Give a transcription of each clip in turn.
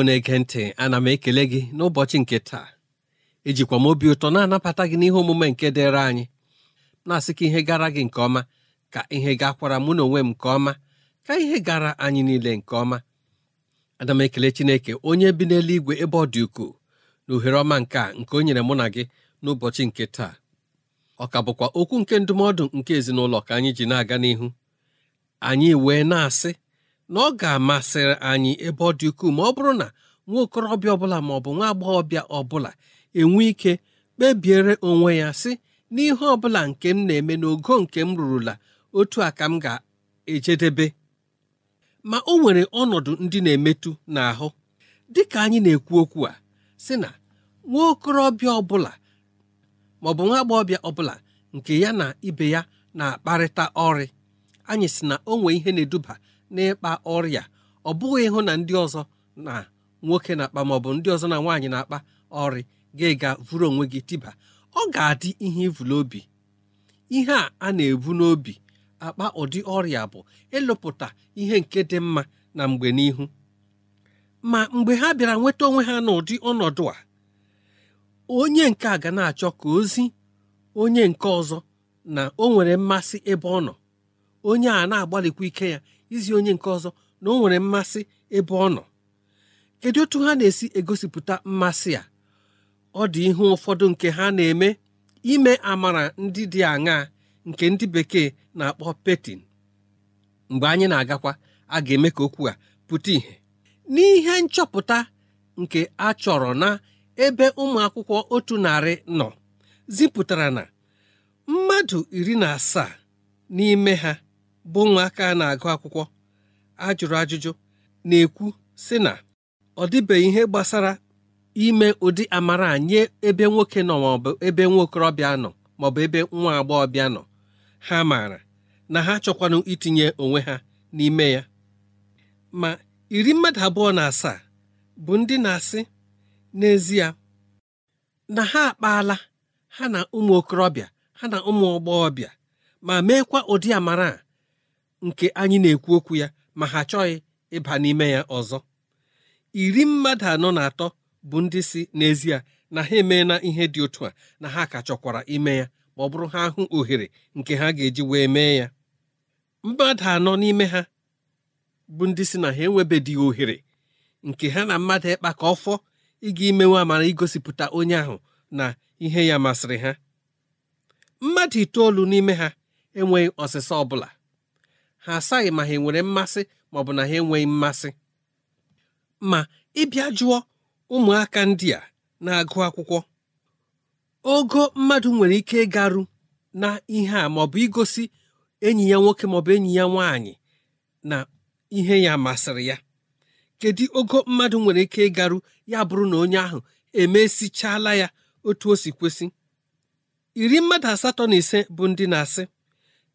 igbo na-ege ntị ana m ekele gị n'ụbọchị nke taa ejikwa m obi ụtọ na-anabata gị n'ihe omume nke dịrị anyị na-asị ka ihe gara gị nke ọma ka ihe gakwara mụ na onwe m nke ọma ka ihe gara anyị niile nke ọma ana m ekele chineke onye bi n'eluigwe ebe ọ dị ukwuu na ohere ọma nke a nke o nyere mụ na gị n'ụbọchị nke taa ọ ka bụkwa okwu nke ndụmọdụ nke ezinụlọ ka anyị ji na-aga n'ihu anyị wee na-asị na ọ ga-amasịrị anyị ebe ọ dị ukwuu ma ọ bụrụ na nwa okorobịa ọbụla ma ọ bụ nwa agbọghọbịa ọbụla enwe ike kpebiere onwe ya sị n'ihe ọbụla nke m na-eme n'ogo nke m rụrụla otu a ka m ga-ejedebe ma o nwere ọnọdụ ndị na-emetụ n'ahụ dị ka anyị na-ekwu okwu a sị na nwa okorobịa ọbụla maọbụ nwa agbọghọbịa ọbụla nke ya na ibe ya na-akparịta ọrị anyị sị na o nwee ihe na-eduba n'ịkpa ọrịa ọ bụghị ịhụ na ndị ọzọ na nwoke na-akpa maọbụ ndị ọzọ na nwaanyị na-akpa ọrị ga-ega vụrụ onwe gị tiba ọ ga-adị ihe ivụlụ obi ihe a a na-ebu n'obi akpa ụdị ọrịa bụ ịlụpụta ihe nke dị mma na mgbe n'ihu ma mgbe ha bịara nweta onwe ha n'ụdị ọnọdụ a onye nke a ga na-achọ ka ozi onye nke ọzọ na o nwere mmasị ebe ọ nọ onye a na-agbalịkwa ike ya izi onye nke ọzọ na o nwere mmasị ebe ọ nọ kedu otu ha na-esi egosipụta mmasị a ọ dị ihu ụfọdụ nke ha na-eme ime amara ndị dị aṅaa nke ndị bekee na-akpọ petin mgbe anyị na-agakwa a ga-eme ka okwu a pụta ìhè n'ihe nchọpụta nke a chọrọ na ebe ụmụ akwụkwọ otu narị nọ zipụtara na mmadụ iri na asaa n'ime ha bụ ụmụaka a na-agụ akwụkwọ ajụrụ ajụjụ na-ekwu sị na ọ dịbeghị ihe gbasara ime ụdị amara nye ebe nwoke nọ maọbụ ebe nwa okorobịa nọ maọbụ ebe nwa agbọghọbịa nọ ha maara na ha chọkwanụ itinye onwe ha n'ime ya ma iri mmadụ abụọ na asaa bụ ndị na-asị n'ezie na ha akpaala ha na ụmụ okorobịa ha na ụmụ agbọghọbịa ma meekwa ụdị amara a nke anyị na-ekwu okwu ya ma ha achọghị ịba n'ime ya ọzọ iri mmadụ anọ na atọ bụ ndị si n'ezie na ha emeela ihe dị otu a na ha ka chọkwara ime ya ma ọ bụrụ ha hụ ohere nke ha ga-eji wee mee ya mmadụ anọ n'ime ha bụ ndị si na ha enwebeghị ohere nke ha na mmadụ ịkpa ka ọfọ ịga imewe amara igosipụta onye ahụ na ihe ya masịrị ha mmadụ itoolu n'ime ha enweghị ọsịsa ọbụla ha asaghị ma ha nwere mmasị maọbụ na ha enweghị mmasị ma ịbịa jụọ ụmụaka ndị a na-agụ akwụkwọ ogo mmadụ nwere ike ịgaru na ihe a maọbụ igosi enyi ya nwoke maọbụ enyi ya nwaanyị na ihe ya masịrị ya kedu ogo mmadụ nwere ike ịgaru ya bụrụ na onye ahụ emesichala ya otu o si kwesị iri mmadụ asatọ na ise bụ ndị na-asị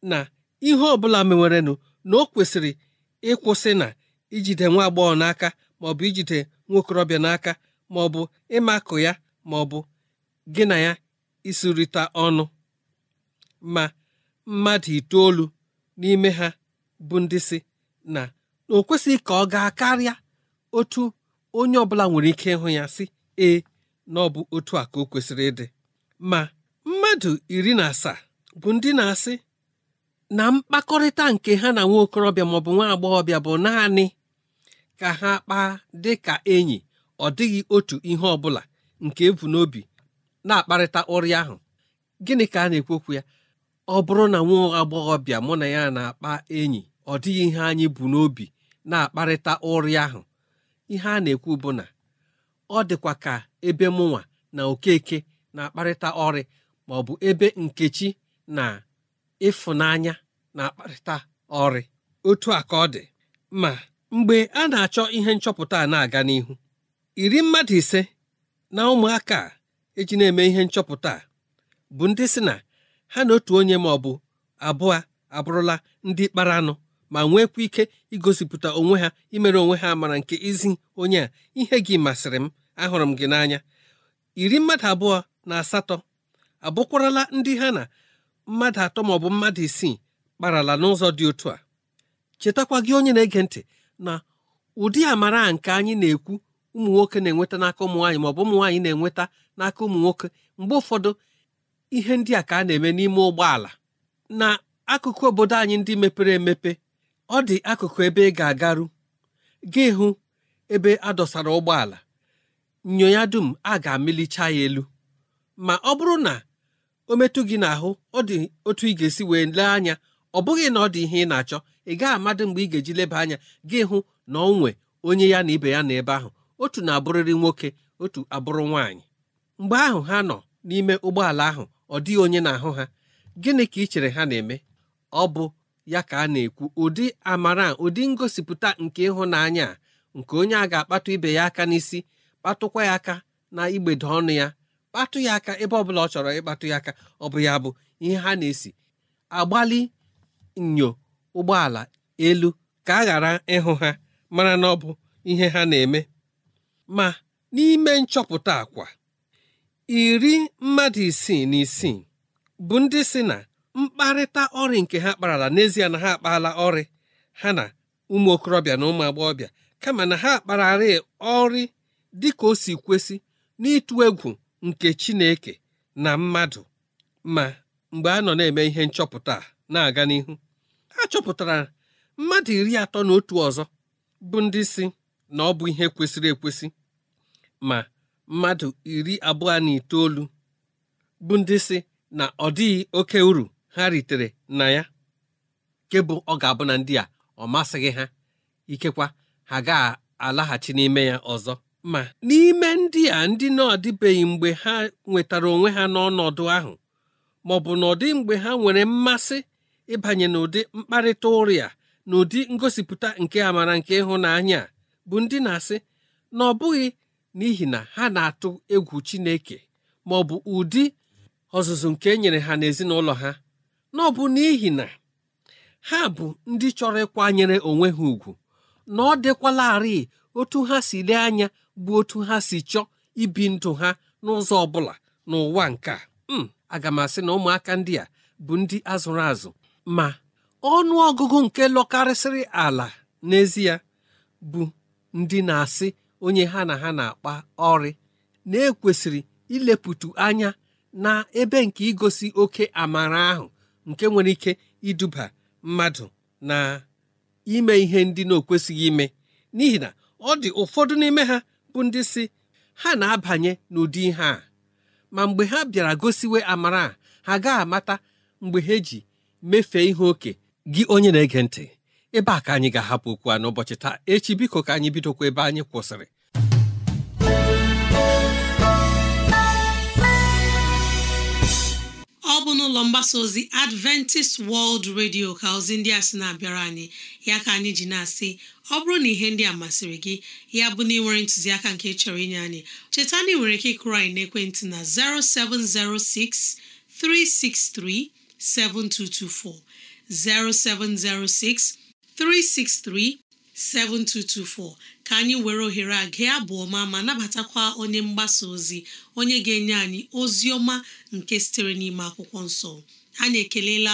na ihe ọ bụla na ọ kwesịrị ịkwụsị na ijide nwa agbọghọ n'aka maọbụ ijide okorobịa n'aka maọbụ ịmakụ ya maọbụ gị na ya isurịta ọnụ ma mmadụ itoolu n'ime ha bụ ndị si na o kwesịghị ka ọ gaa karịa otu onye ọbụla nwere ike ịhụ ya si ee na ọ bụ otu a ka o kwesịrị ịdị ma mmadụ iri na asaa bụ ndị na-asị na mkpakọrịta nke ha na nwa okorobịa maọbụ nwa agbọghọbịa bụ naanị ka ha kpaa dị ka enyi ọ dịghị otu ihe ọ bụla nke ebu n'obi na-akparịta ụrị ahụ gịnị ka a na-ekwekwu ya ọ bụrụ na nwa agbọghọbịa mụ na ya na-akpa enyi ọ dịghị ihe anyị bụ n'obi na-akparịta ụrị ahụ ihe a na-ekwu bụ na ọ dịkwa ka ebe mụnwa na okeke na-akparịta ọrị maọbụ ebe nkechi na ịfụnanya na-akparịta ọrị otu a ka ọ dị ma mgbe a na-achọ ihe nchọpụta a na-aga n'ihu iri mmadụ ise na ụmụaka eji na-eme ihe nchọpụta a bụ ndị si na ha na otu onye ma ọ bụ abụọ abụrụla ndị kpara anụ ma nwekwa ike igosipụta onwe ha imere onwe ha mara nke izi onye a ihe gị masịrị m ahụrụ m gị n'anya iri mmadụ abụọ na asatọ abụkwarala ndị ha na mmadụ atọ ma ọ bụ mmadụ isii kparala n'ụzọ dị otu a chetakwa gị onye na-ege ntị na ụdị amara nke anyị na-ekwu ụmụ nwoke na-enweta n'aka ụmụ nwaanyị maọbụ bụ ụmụ nwaanyị na-enweta n'aka ụmụ nwoke mgbe ụfọdụ ihe ndị a ka a na-eme n'ime ụgbọala na akụkụ obodo anyị ndị mepere emepe ọ dị akụkụ ebe ị ga-agaru gị hụ ebe a dọsara ụgbọala nyo ya dum a ga-amịlicha ya elu ma ọ bụrụ na o metụ gị n'ahụ ọ dị otu ị ga-esi wee lee anya ọ bụghị na ọ dị ihe ị na-achọ ị gaghị amadị mgbe ị ga-eji leba anya gị hụ na ọ nwe onye ya na ibe ya na ebe ahụ otu na-abụrịrị nwoke otu abụrụ nwaanyị mgbe ahụ ha nọ n'ime ụgbọala ahụ ọ dịghị onye na-ahụ ha gịnị ka ị chere ha na-eme ọ bụ ya ka a na-ekwu ụdị amara ụdị ngosipụta nke ịhụnanya nke onye a ga-akpatụ ibe ya aka n'isi kpatụkwa ya aka na igbede ọnụ ya kpatụ ya aka ebe ọbụla ọ chọrọ ịkpatụ ya aka ọ bụ ya bụ ihe ha na-esi agbalị nyo ụgbọala elu ka a ghara ịhụ ha mara na ọ bụ ihe ha na-eme ma n'ime nchọpụta akwa iri mmadụ isii na isii bụ ndị si na mkparịta ọrịa nke ha kparala n'ezie na ha akpaala ọrị ha na ụmụ okorobịa na ụmụ agbọghọbịa kama na ha kpararị ọrị dị ka o si kwesị n'ịtụ egwu nke Chineke na mmadụ ma mgbe a nọ na-eme ihe nchọpụta na-aga n'ihu a chọpụtara mmadụ iri atọ na otu ọzọ bụ ndị si na ọ bụ ihe kwesịrị ekwesị ma mmadụ iri abụọ na itoolu bụ ndị si na ọ dịghị oke uru ha ritere na ya nke bụ ọ ga-abụ na ndị a ọ masịghị ha ikekwa ha ga-alaghachi n'ime ya ọzọ ma n'ime ndị a ndị na adịbeghị mgbe ha nwetara onwe ha n'ọnọdụ ahụ ma ọ bụ n'ọdị mgbe ha nwere mmasị ịbanye n'ụdị mkparịta ụrịa na ụdị ngosipụta nke amara nke ịhụnanya bụ ndị na-asị na ọ bụghị n'ihi na ha na-atụ egwu Chineke ma ọ bụ ụdị ọzụzụ nke e nyere ha n'ezinụlọ ha na ọ bụ n'ihi na ha bụ ndị chọrọ ịkwanyere onwe ha ùgwù na ọ dịkwalarị otu ha si lee anya bụ otu ha si chọọ ibi ndụ ha n'ụzọ ọ bụla n'ụwa nke a hmm, aga m asị na ụmụaka ndị a bụ ndị azụrụ azụ ma ọnụ ọgụgụ nke lọkarịsịrị ala n'ezie bụ ndị na-asị onye ha na ha na-akpa ọrị na-ekwesịrị ileputu anya na ebe nke igosi oke amara ahụ nke nwere ike iduba mmadụ na ime ihe ndị na-ekwesịghị ime n'ihi na ọ dị ụfọdụ n'ime ha bụ ndị si ha na-abanye n'ụdị ihe a ma mgbe ha bịara gosiwe amara ha gaghị amata mgbe ha ji mefee ihe oke gị onye na-ege ntị ebe a ka anyị ga-ahapụ okwu a n'ụbọchị taa echi biko ka anyị bidokwa ebe anyị kwụsịrị n'ụlọ mgbasa ozi adventist world radio ka ozi ndị a sị na-abịara anyị ya ka anyị ji na-asị ọ bụrụ na ihe ndị a masịrị gị ya bụ na ị nwere ntụziaka nke chọrọ inye anyị cheta na ị nwere ike ịkụrụ anyị n'ekwentị na 0706 363 7224 0706 363 7224 ka anyị were ohere a gee abụ ọma ma nabatakwa onye mgbasa ozi onye ga-enye anyị ozi ọma nke sitere n'ime akwụkwọ nsọ anyị ekelela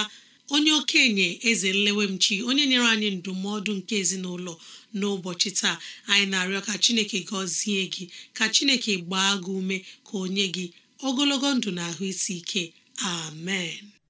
onye okenye eze nlewemchi onye nyere anyị ndụmọdụ nke ezinụlọ n'ụbọchị taa anyị na-arịọ ka chineke gọzie gị ka chineke gbaa gị ume ka o nye gị ogologo ndụ na ahụ isi ike amen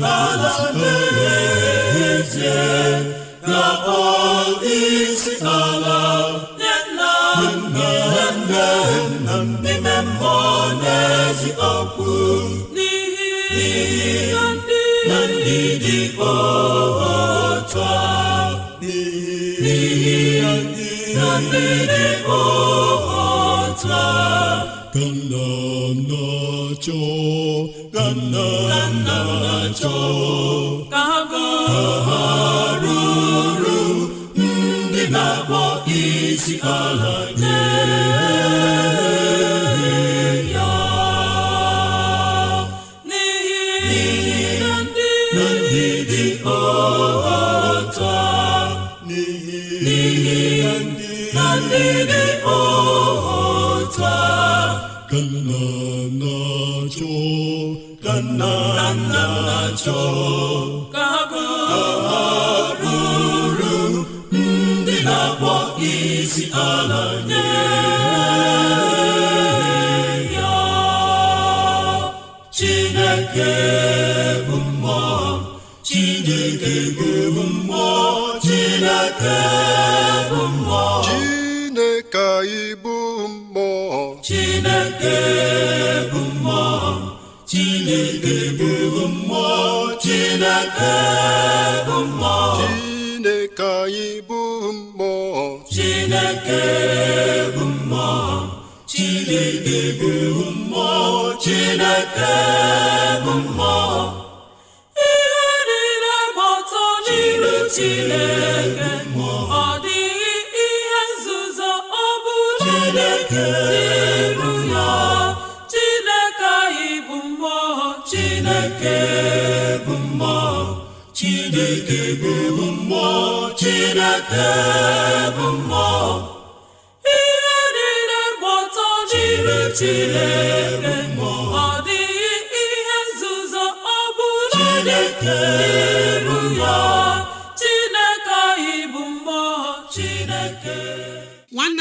n'ala mmehie ezie ga-akpọ isi ala nne nna nna nne n'ihi ndị dị a n'ihi ndị dị a nna nna achọ ha ruru ndị na-akpọ isi ala عذاب الله Chineke anyị bụ mmụọ Chineke bụ mmụọ Chineke bụ mmụọ Chineke bụ mmụọ chineke bụ mmụọ ihe niile gba ọtọ jiri chineke ọ dịghị ihe nzuzo ọ bụla dị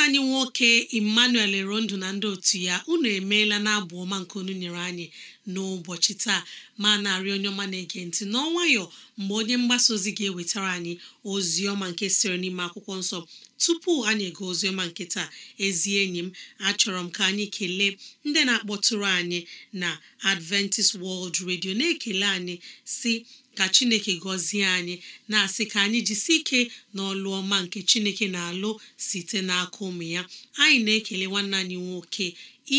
anyị nwoke emmanuel erondu na ndị otu ya unu emeela na abụ ọma nke onu nyere anyị n'ụbọchị taa ma na-arị onye ọma na-ege ntị n'ọnwayọ mgbe onye mgbasa ozi ga-ewetara anyị ozi ọma nke siri n'ime akwụkwọ nsọ tupu anyị ego ozi ọma nke taa ezi enyi m achọrọ m ka anyị kelee ndị na-akpọtụrụ anyị na Adventist World Radio na-ekele anyị si ka chineke gọzie anyị na-asị ka anyị jisi ike n'ọlụ ọma nke chineke na-alụ site n'aka ụmụ ya anyị na-ekele nwanne anyị nwoke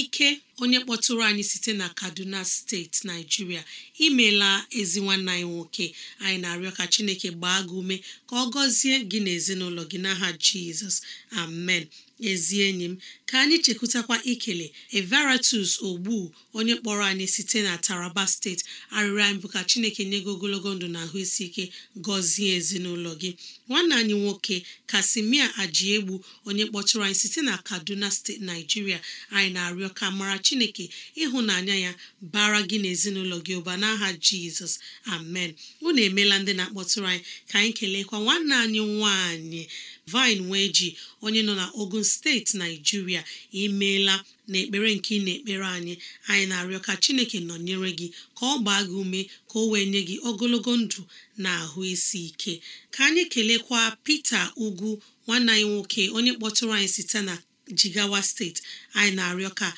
ike onye kpọtụrụ anyị site na kaduna steeti naijiria imela ezi nwanne anyị nwoke anyị na-arịọ ka chineke gbaa gị ume ka ọ gọzie gị na gị n'aha jizọs amen ezi enyi m ka anyị chekwutakwa ikele evaratus ogbu onye kpọrọ anyị site na taraba steeti arịrịọ anyị bụ ka chineke nye gị ogologo ndụ na ahụisi isi ike gọzie ezinụlọ gị nwanne anyị nwoke kasimia ajiegbu onye kpọtụrụ anyị site na kaduna steeti naijiria anyị na-arịọ ka mara chineke ịhụnanya ya bara gị na ezinụlọ gị ụba n'aha jizọs amen unu emeela ndị na-akpọtụrụ anyị ka anyị keleekwa nwanne anyị nwanyị vine wee onye nọ na ogun steeti naijiria imeela na ekpere nke ị na-ekpere anyị anyị na-arịọ ka chineke nọnyere gị ka ọ gbaa gị ume ka o wee nye gị ogologo ndụ na ahụ isi ike ka anyị kelekwa Peter Ugwu nwanne anyị nwoke onye kpọtụrụ anyị site na Jigawa steeti anyị na-arịọ ka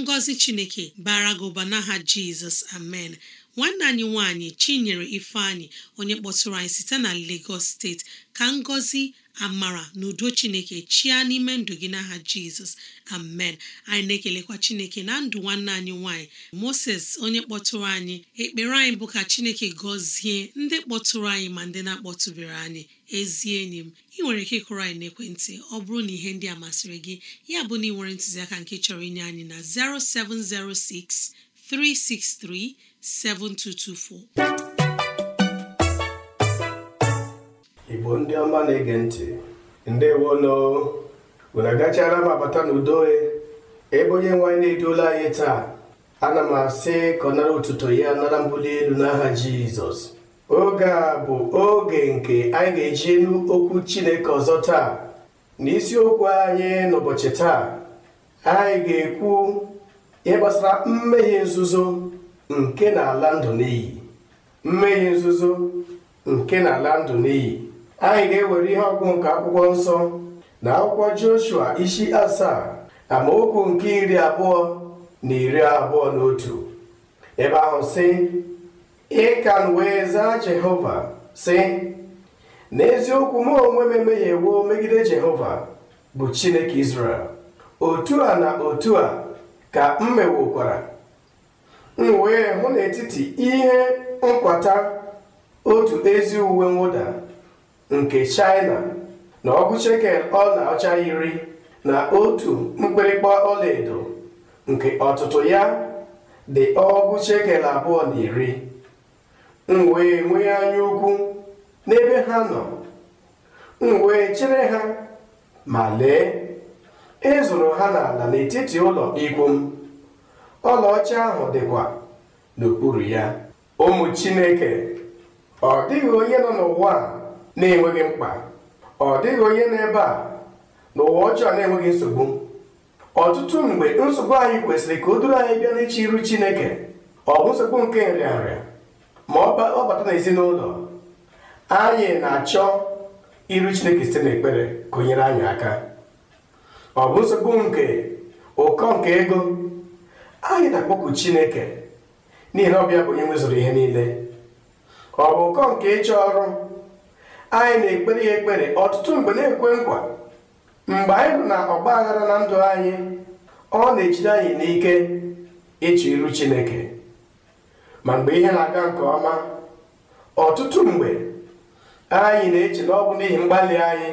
ngọzi chineke bara gị n'aha Jizọs amen nwanne anyị nwanyị Chinyere Ifeanyị onye kpọtụrụ anyị site na Lagos steeti ka ngọzi amara na udo chineke chia n'ime ndụ gị n'aha jizọs amen anyị na-ekelekwa chineke na ndụ nwanne anyị nwanyị moses onye kpọtụrụ anyị ekpere anyị bụ ka chineke gọzie ndị kpọtụrụ anyị ma ndị na-akpọtụbere anyị ezi enyi m ị nwere ike ịkụrụ anyị n'ekwentị ọ bụrụ na ihe ndị a masịrị gị ya bụ na ị nwere ntụziaka nke chọrọ inye anyị na 0706 363 7224 igbo ndị ọma na-ege ntị Ndị ndewonu unu agachaala m abata n'udo e. ebe onye nwaanyị na-eduola anyị taa ana m asị ka ọ nara ụtụtụ ya nara mbuli elu n'aha jizọs oge a bụ oge nke anyị ga-eji elu okwu chineke ọzọ taa n'isiokwu anyị n'ụbọchị taa anyị ga-ekwu ihe gbasara mmehie nzuzo nke na-ala ndụ n'iyi mmehie nzuzo nke na-ala ndụ n'iyi anyị ga-ewere ihe ọgụ nke akwụkwọ nsọ na akwụkwọ Joshua isi asaa amaokwu nke iri abụọ na iri abụọ na otu ebe ahụ sị ịkan wee zaa Jehova sị n'eziokwu m onwe m emehiewo megide Jehova bụ Chineke Izrel otu a na otu a ka m mewokwara m wee hụ n'etiti ihe nkwata otu ezi uwe mwụda nke China na ọgụ shekel ọla ọcha iri na otu mkpịrịkpa ọlaedo nke ọtụtụ ya dị ọgụ shekel abụọ na iri m wee nwee anya ukwu n'ebe ha nọ m wee chere ha ma lee ịzụrụ e ha n'ala n'etiti ụlọ ikwu m ọlaọcha ahụ dịkwa n'okpuru ya ụmụ Chineke ọ dịghị onye nọ n'ụwa a na-enweghị mkpa ọ dịghị onye n'ebe a n'ụwa ọjọọ na-enweghị nsogbu ọtụtụ mgbe nsogbu anyị kwesịrị ka o duru anyị bịa n'iche iru Chineke ọ bụ nsogbu nke nrịanrịa ma ọ bata n'ezinụlọ anyị na-achọ iru Chineke site n'ekpere gụnyere anyị aka ọ bụ nsogbu nke ụkọ nke ego anyị na-akpọku Chineke n'ihi na ọbịa bụ onye nwezụrụ ihe niile ọ bụ ụkọ nke ịchọ ọrụ anyị na-ekpere ya ekpere ọtụtụ mgbe na-ekwe nkwa mgbe anyị bụ na ọgba aghara na ndụ anyị ọ na-ejide anyị n'ike ịchụ iru chineke ma mgbe ihe na-aga nke ọma ọtụtụ mgbe anyị na-eche na ọ bụ n'ihi mgbalị anyị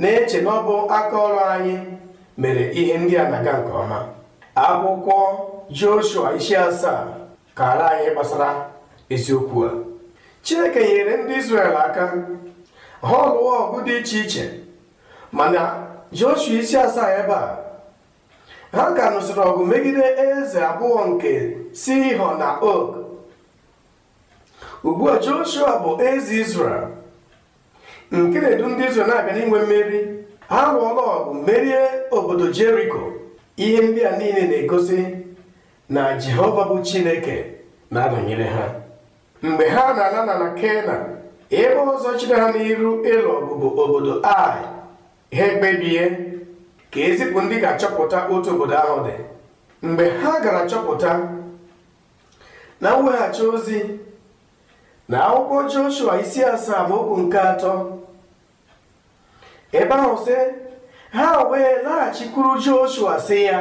na-eche na ọ bụ aka ọrụ anyị mere ihe ndị a na-aga nke ọma akwụkwọ Joshua isi asaa kara anyị gbasara eziokwu a chineke nyere ndị israel aka ha ọlụwa ọgụ dị iche iche mana joshua isi asaa ebe a ha ka nụsịrị ọgụ megide eze abụọ nke họ na ok ugbu a joshua bụ eze israel nke na-edu ndị israel na-abịa n'inwe mmeri ha lụọla ọgụ merie obodo jeriko ihe ndị a niile na-egosi na jehova bụ chineke na-anọnyere ha mgbe ha na anana na Kena ebe ọzọ chere ha n'iru ịlụ ọgụ bụ obodo Ai ha ekpebie ka ezipụ ndị ga-achọpụta otu obodo ahụ dị mgbe ha gara chọpụta na mweghachi ozi na akwụkwọ Joshua isi asaa ma okwu nke atọ ebe ahụ sị ha wee laghachikwuru Joshua si ya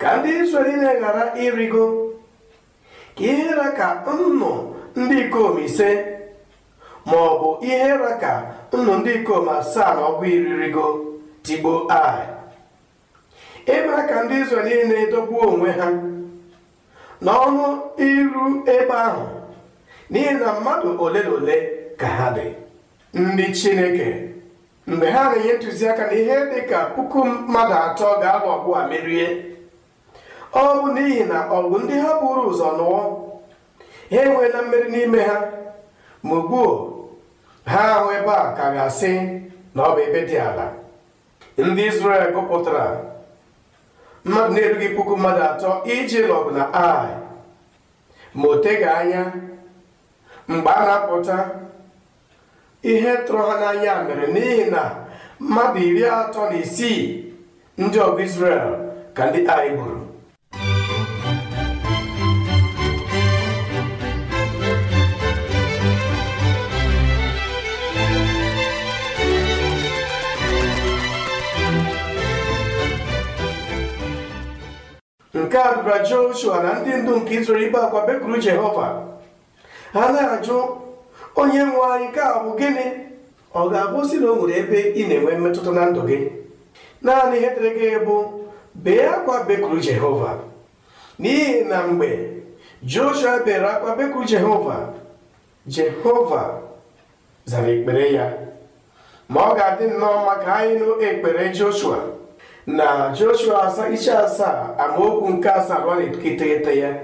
ka ndị Izrel ghara ịrịgo ihe raka nnu ndị ikom ise ma ọ bụ ihe raka nnụ ndị ikom asaa na iri iririgo tigbo ai emere ka ndị Izrel na-edogbu onwe ha n'ọnụ iru ebe ahụ n'ihi na mmadụ ole na ole ka ha dị ndị Chineke mgbe ha na-enye ntụziaka na ihe dị ka puku mmadụ atọ ga-alụ ọgụ merie ọ bụ n'ihi na ọgụ ndị ha buru ụzọ nụọ ha enweela mmeri n'ime ha ma ugbuo ha ahụ ebe a ka ga-asị na ọ bụ ebe dị ala ndị Izrel gụpụtara mmadụ na-erughị puku mmadụ atọ iji lọgụ na ai ma o anya mgbe a na-apụta ihe tụrụ ha n'anya mere n'ihi na mmadụ iri atọ na isii ndị ọgụ Izrel ka ndị ai gburu nke a dụra joshua na ndị ndu nke izuru ibe akwa bekuru jehova ha na-ajụ onye nwe anyị ka a bụ gịnị ọ ga-abụ si na o nwere ebe ị na-enwe mmetụta na ndụ gị naanị ihe dịrị gị bụ bee akwa bekuru jehova n'ihi na mgbe joshua bere akwa bekuru jehova jehova zara ekpere ya ma ọ ga-adị nnọọ maka anyị ekpere joshua na joshua isi asaa amaokwu nke asaa ruo iteghete ya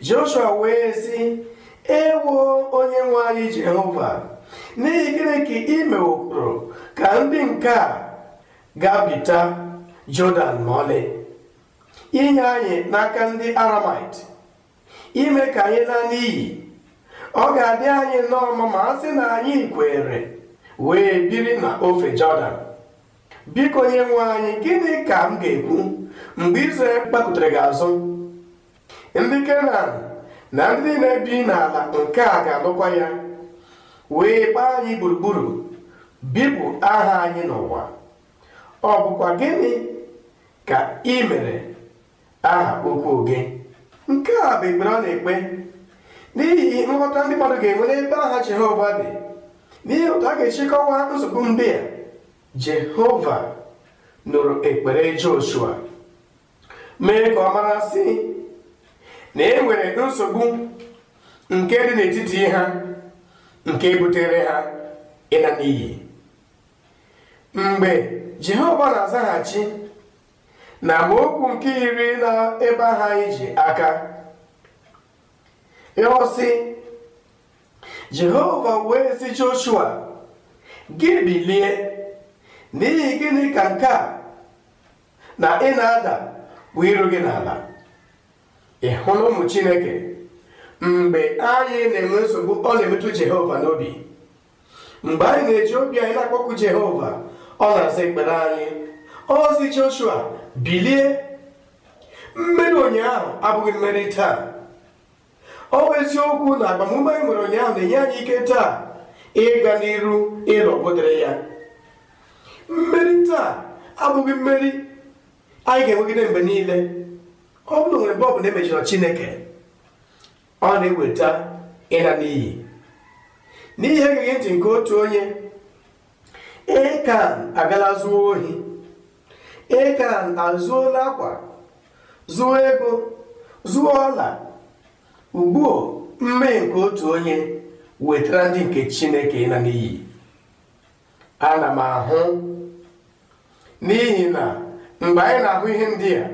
joshua wee sị ewo onye nwe anyị jehova n'ihi gịnị ka i ka ndị nke a gabita jọdan ma inye anyị n'aka ndị aramait ime ka anyị na iyi, ọ ga-adị anyị nnọọ ma a sị na anyị kwere wee biri na ofe jọdan biko onye nwe anyị gịnị ka m ga-ekwu mgbe Izrel gbakụtara gị azụ ndị Kenan na ndị na-ebi n'ala nke a ga-alụkwa ya wee gbaa anyị gburugburu bipụ aha anyị n'ụwa ọ bụkwa gịnị ka ị mere aha okwu gị nke a bụ ekpere ọ na-ekpe n'ihi nghọta ndị mmadụ ga-enwe n'ebe aha Jehova dị n'ihi otu a ga-echekọwa nzukọ ndị a Jehova nụrụ ekpere Joshua mee ka ọ mara sị na e nwere nsogbu nke dị n'etiti ha nke butere ha ịla n'iyi mgbe Jehova na-azaghachi na amaokwu nke iri na ebe ha ije aka ọ sị Jehova wee sị Joshua gị bilie n'ihi gịnị ka nke a na ị na-ada bụ iru gị n'ala ị hụrụ ụmụ chineke mgbe anyị na-enwe nsogbu ọ na-emetụ jehova n'obi mgbe anyị na-eji obi anyị na-akpọkụ jehova ọ na-aza ekpere anyị ozi joshua bilie mmeri ụnyaahụ abụghị mmeri taa ọ bụ eziokwu na agbamume anyị nwere ụnyaahụ na-enye anyị ike taa ịga n'iru ịrọpụtara ya mmeri taa abụghị mmeri anyị ga-enwegide mgbe niile ọ bụrụ nwere mgbe ọ bụla e chineke ọ na-eweta ịla n'iyi n'ihe egeghị ntị nke otu onye ekan agala zuo ohi ekan azụola akwa zuo ego zuo ọla ugbuo mmeghi nke otu onye wetara ndị nke chineke ịla n'iyi ana m ahụ n'ihi na mgbe anyị na-ahụ ihe ndị a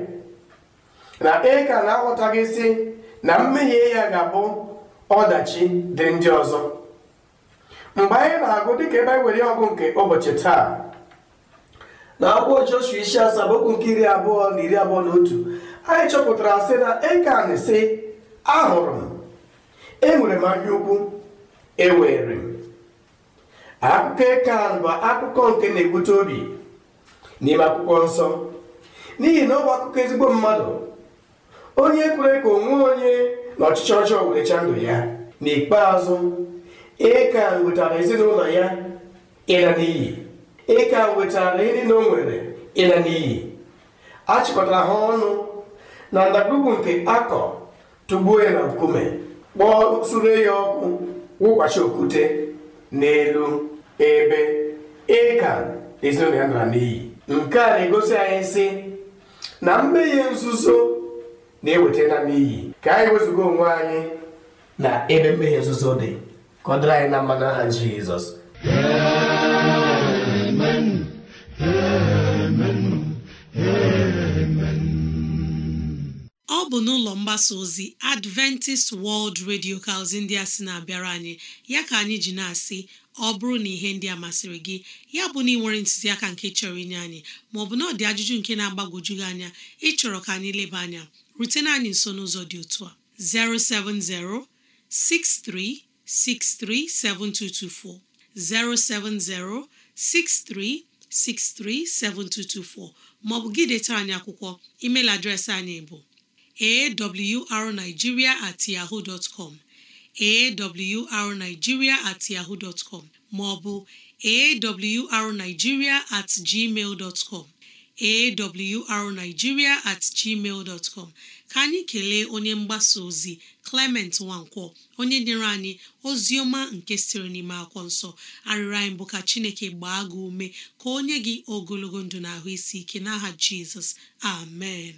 na ịka na-aghọtaghị si na mmehie ya ga-abụ ọdachi dị ndị ọzọ mgbe anyị na-agụ dịka ebe anyị were ọgụ nke ụbọchị taa na akwụkwọ Joshua isi asaa nke iri abụọ na iri abụọ na otu anyị chọpụtara sị na ịkan sị ahụrụ m enwere m anya ukwu ewere m akụkọ ịkan bụ akụkọ nke na-ebute obi n'ime akwụkwọ nsọ n'ihi na ọ bụ akụkọ ezigbo mmadụ onye kwere ka onwe onye na ọchịchị ọjọọ werecha ndụ ya n'ikpeazụ ịka nwetara ezinụlọ ya ịla n'iyi ịka nwetara ndị na o nwere ịla n'iyi a ha ọnụ na ndagwurugwu nke akọ tụgbuo ya na nkume kpọọ sure ya ọkụ wụkwachi okwute n'elu ebe ịka ezinụlọ ya nara n'iyi nke a na-egosi anyị sị na mmehie nzuzo na eweta m ka anyị wezụga onwe anyị na ebe mmehie nzuzo dị ka ọ dịrị anyị na aha n'aha Jizọs n'ụlọ mgbasa ozi Adventist World Radio ka ndị a sị na-abịara anyị ya ka anyị ji na-asị ọ bụrụ na ihe ndị a masịrị gị ya bụ na ị nwere ntụziaka nke chọrọ inye anyị maọbụ na ọ dị ajụjụ nke na-agbagwoju gị anya ịchọrọ ka anyị leba anya rutena anyị nso n'ụzọ dị otu a 070 6363 7224 070 6363 7224 maọbụ gị detara anyị akwụkwọ email adreesị anyị bụ awrnigeria at yahoo dot com awrnigeria at yahoo dot com maọbụ awrnigeria at gmail dot com at gmail dot com ka anyị kelee onye mgbasa ozi Clement Nwankwo, onye nyere anyị ozi ọma nke siri n'ime akwụkwọ nsọ arịrịọ anyị bụ ka Chineke gbaa gị ume ka onye gị ogologo ndụ na ahụ isi ike n'aha Jizọs amen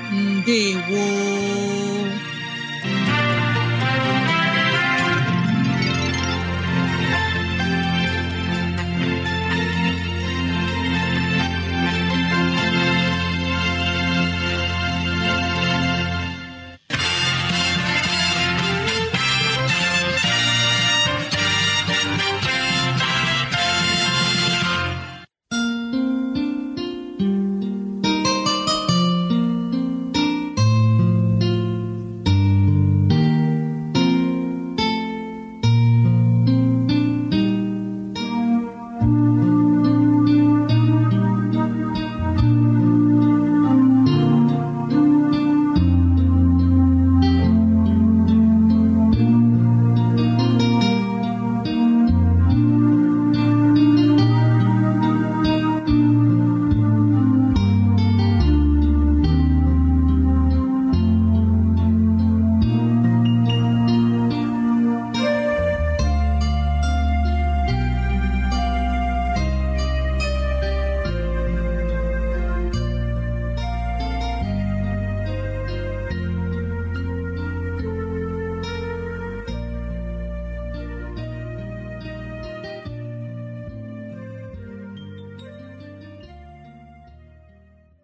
ndewo